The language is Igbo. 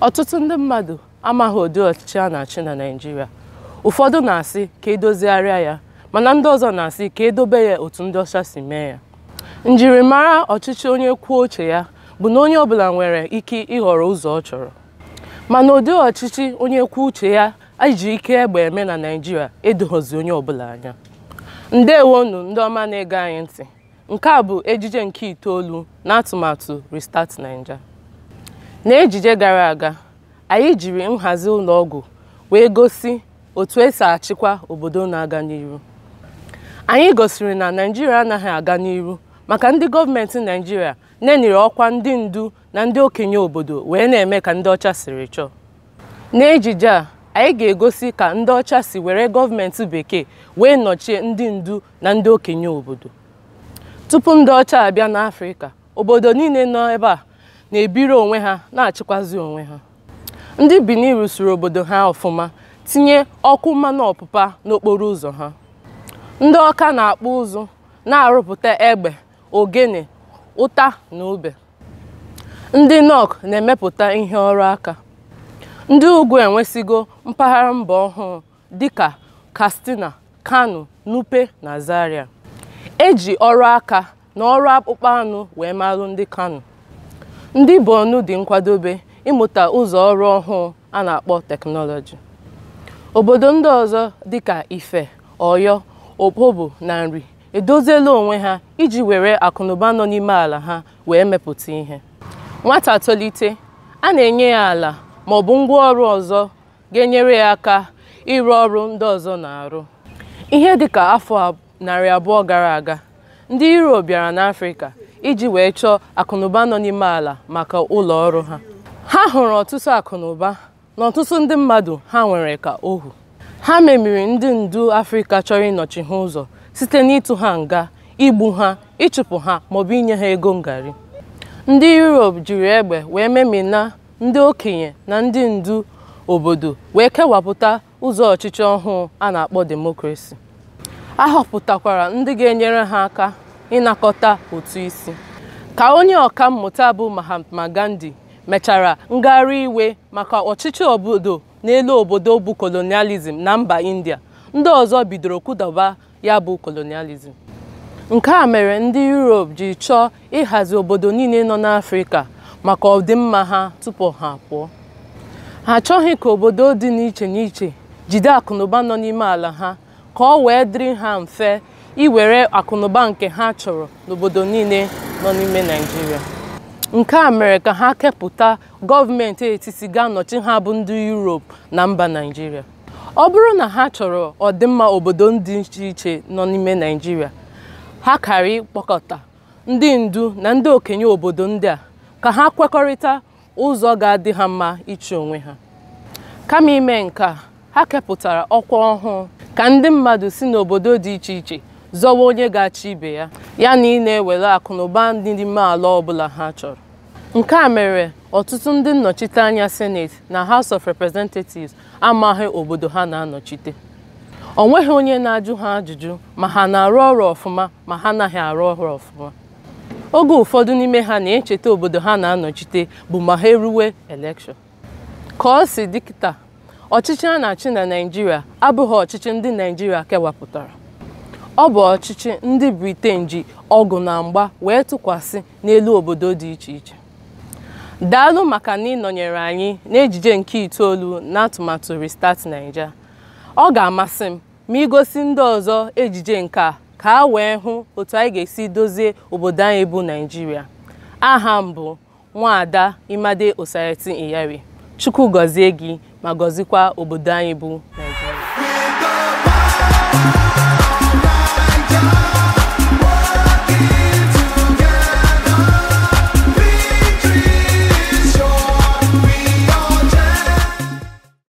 ọtụtụ ndị mmadụ amaghị ụdị ọchịchị a na-achị na Naịjirịa ụfọdụ na-asị ka edozigharịa ya mana ndị ọzọ na-asị ka edobe ya otu ndị ọcha si mee ya njirimara ọchịchị onye kwuo uche ya bụ na onye ọbụla nwere ike ịhọrọ ụzọ ọ chọrọ mana ụdị ọchịchị onye kwuo uche ya iji ike egbe eme na Naịjirịa edoghọzi onye ọbụla anya ndewonu ndị ọma na-ege anyị ntị nke a bụ ejije nke itoolu na atụmatụ Restart Naija N'ejije gara aga, anyị jiri nhazi ụlọ ọgwụ wee gosi otu esi achịkwa obodo na-aga n'ihu. Anyị gosiri na Naijiria anaghị aga n'ihu maka ndị gọọmenti Naịjirịa neniri ọkwa ndị ndu na ndị okenye obodo wee na-eme ka ndị ọcha siri chọọ. N'ejije a, anyị ga-egosi ka ndị ọcha si were gọọmenti bekee wee nọchie ndị ndu na ndị okenye obodo. Tupu ndị ọcha abịa n'Afrịka, obodo niile nọ ebe a na-ebiri onwe ha na-achịkwazi onwe ha ndị Benin rụsiri obodo ha ọfụma tinye ọkụ mmanụ ọpụpa n'okporo ụzọ ha ndị ọka na-akpụ ụzụ na-arụpụta egbe ogene ụta na ube ndị nọk na-emepụta ihe ọrụ aka ndị ugwu enwesigo mpaghara mba ọhụụ dịka Katsina Kano Nupe na Zaria eji ọrụ aka na ọrụ akpụkpọ anụ wee malụ ndị Kano ndị ọnụ dị nkwadobe ịmụta ụzọ ọrụ ọhụụ a na-akpọ teknọlọji obodo ndị ọzọ dịka Ife Ọyọ Opobo na Nri edoziela onwe ha iji were akụnụba nọ n'ime ala ha wee mepụta ihe nwata tolite a na-enye ya ala ma ọ bụ ngwaọrụ ọzọ ga-enyere ya aka ịrụ ọrụ ndị ọzọ na-arụ ihe dịka afọ narị abụọ gara aga ndị Europe bịara n'Afrịka iji wee chọọ akụnụba nọ n'ime ala maka ụlọ ọrụ ha ha hụrụ ọtụtụ akụnụba na ọtụtụ ndị mmadụ ha nwere ka ohu ha memiri ndị ndu Afrịka chọrọ ịnọchi ha ụzọ site n'ịtụ ha nga igbu ha ịchụpụ ha maọbụ inye ha ego ngari ndị Europe jiri egbe wee memina ndị okenye na ndị ndu obodo wee kewapụta ụzọ ọchịchị ọhụụ a na-akpọ demokrasi a họpụtakwara ndị ga-enyere ha aka ịnakọta ụtụ isi ka onye ọka mmụta bụ Mahatma Gandhi mechara ngagharị iwe maka ọchịchị obodo n'elu obodo bụ kolonializm na mba India ndị ọzọ bidoro kụdaba ya bụ kolonializm nke a mere ndị Europe ji chọọ ịhazi obodo niile nọ n'Afrịka maka ọdịmma ha tupu ha pụọ ha achọghị ka obodo dị n'iche n'iche jide akụnụba nọ n'ime ala ha ka ọ wee dịrị ha mfe iwere akụnụba nke ha chọrọ n'obodo niile nọ n'ime Naịjirịa nke a mere ka ha kepụta gọọmenti etiti ga-anọchi ha bụ ndị Europe na mba Naịjirịa ọ bụrụ na ha chọrọ ọdịmma obodo dị iche iche nọ n'ime Naịjirịa ha kara ịkpọkọta ndị ndu na ndị okenye obodo ndị a ka ha kwekọrịta ụzọ ga-adị ha mma iche onwe ha kama ime nke a ha kepụtara ọkwa ọhụụ ka ndị mmadụ si n'obodo dị iche iche zọwa onye ga-achị ibe ya ya na ị na-ewere akụ na ụba ndị n'ime ala ọbụla ha chọrọ nke a mere ọtụtụ ndị nnọchiteanya senate na house of representatives amaghị obodo ha na-anọchite ọ nweghị onye na-ajụ ha ajụjụ ma ha na-arụ ọrụ ọfụma ma ha anaghị arụ ọrụ ọfụma oge ụfọdụ n'ime ha na-echeta obodo ha na-anọchite bụ ma ha eruwe elekshọn ka ọ si dịkịta ọchịchị a na-achị na Naijiria abụghị ọchịchị ndị Naijiria kewapụtara ọ bụ ọchịchị ndị briten ji ọgụ na mgba wee tụkwasị n'elu obodo dị iche iche daalụ maka na ịnọnyere anyị n'ejije nke itoolu na atụmatụ Restart Naija ọ ga-amasị m ma gosi ndị ọzọ ejije nke a ka a wee hụ otu anyị ga-esi dozie obodo anyị bụ naijiria aha m bụ Nwaada Imade Osayati iyari Chukwu gọzie gị ma gọzikwa obodo anyị bụ naijiria